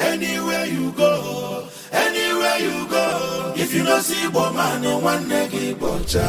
Anywhere you go, anywhere you go, if you no see Igbo nwanne gị bọcha.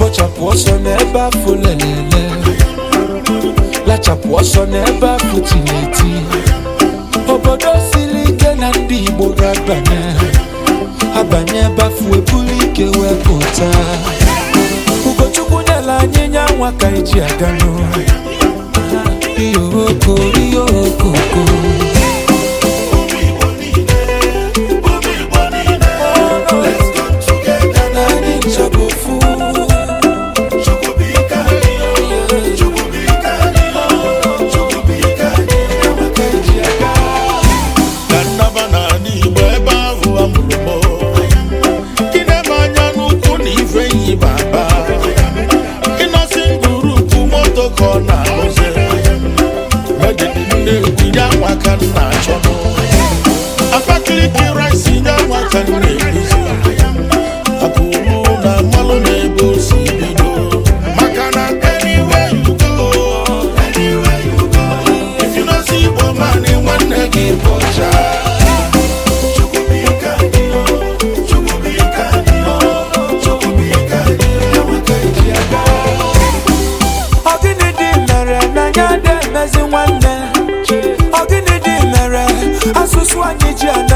Bọchapụ ọsọ n'ebe afọ lelele, lachapụ ọsọ n'ebe afọ tineti. Obodo siri ike na ndị Igbo ga-abanye, abanye ebe ebuli ike wee pụta. Ugochukwu nyela anyị nya nwa ka eji aga n'ụlọ. okoko, iyo okoko. chua ji ana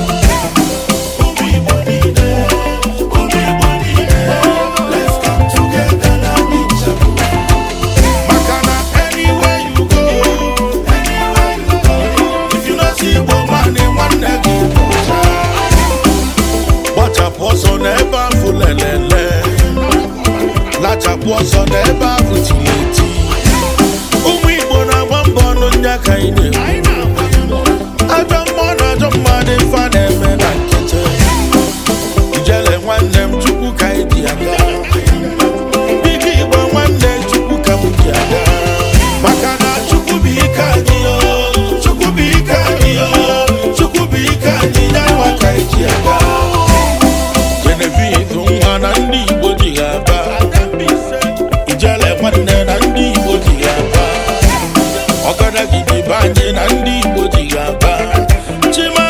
kachapụ ọsọ n'ebe ahụ jiri ọkada gidi be anyị na ndị Igbo ji ga-aba